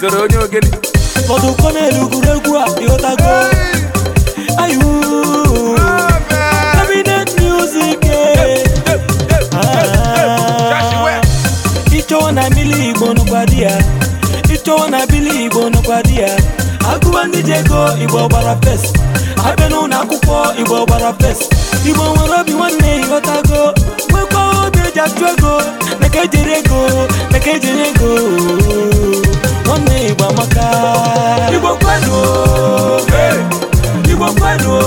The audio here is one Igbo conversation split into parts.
zoro onye ogene ụfọdụ ụkọ na-elu egwuregwu a ịghọtago ayu cabinet music eh. ịchọwa na bili igbo ịchọwa na bili igbo nụkwa di ya agụwa gbara fes akwụkwọ igbo gbara nwere obi nwanne achụ ego naka ejere ego naka ejere ego na-egbu amaka igbo kwenu igbo kwenu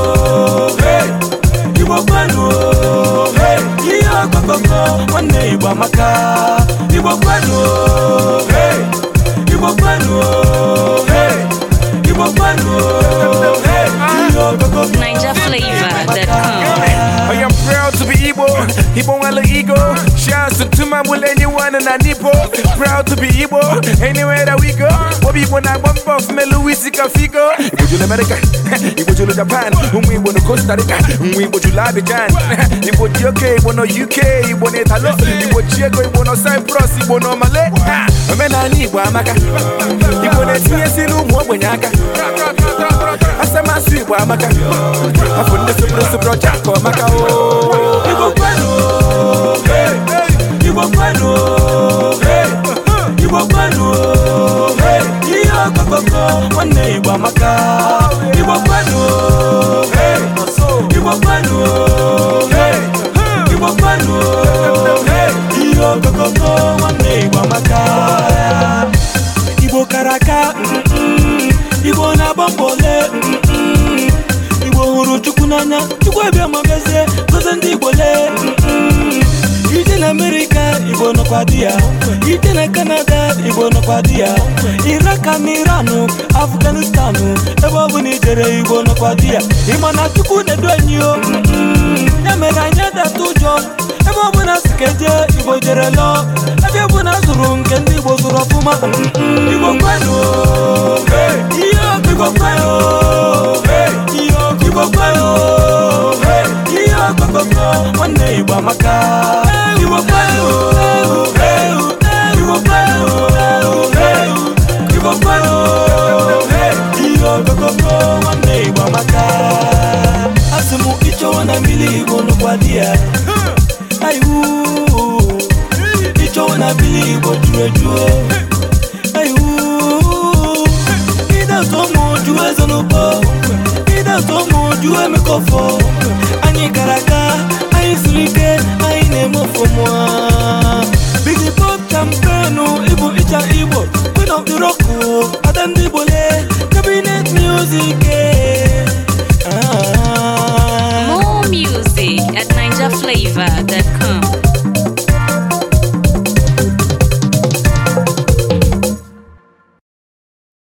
igbo amaka igbo kwenu I am proud to be Igbo, Igbo and Shout out to my will anyone and Anipo. Proud to be Igbo, anywhere that we go. Obi when I bump off me Louis Cafigo. Igbo to America, Igbo to Japan, Umi Igbo to Costa Rica, Umi Igbo to Labijan, Igbo to UK, Igbo to UK, Igbo to Italo, Igbo to Igbo to Cyprus, Igbo to Malay. Omena Igbo amaka, Igbo na-etinyesi n'ụmụ ogbenye aka. Asamasụ Igbo amaka, afọ ndị sopụrụ ọcha ka ọ o. bomba ole igbo hụrụ chukwu n'anya chukwu abịa ma mezie ndị igbo lee ije na amerịka igbo nọkwa di ya ije na kanada igbo nọkwa di ya iraka na iranụ afganistanụ ebe ọ bụla ijere igbo nọkwa di ya ịma na chukwu na-edu anyị o ya mere anyị adata ụjọ ebe ọbụla si ka eje igbo jere lụọ ebe ọbụla zụrụ nke ndị igbo zụrụ ọfụma igbo kwenu ichewo na bili igbo juru ejuo ịdatụ ụmụ oju eze n'ụbọ ịdatụ ụmụ oju emekọfọ anyị gara aga anyị siri ike anyị na-eme ofụma Vada Campo.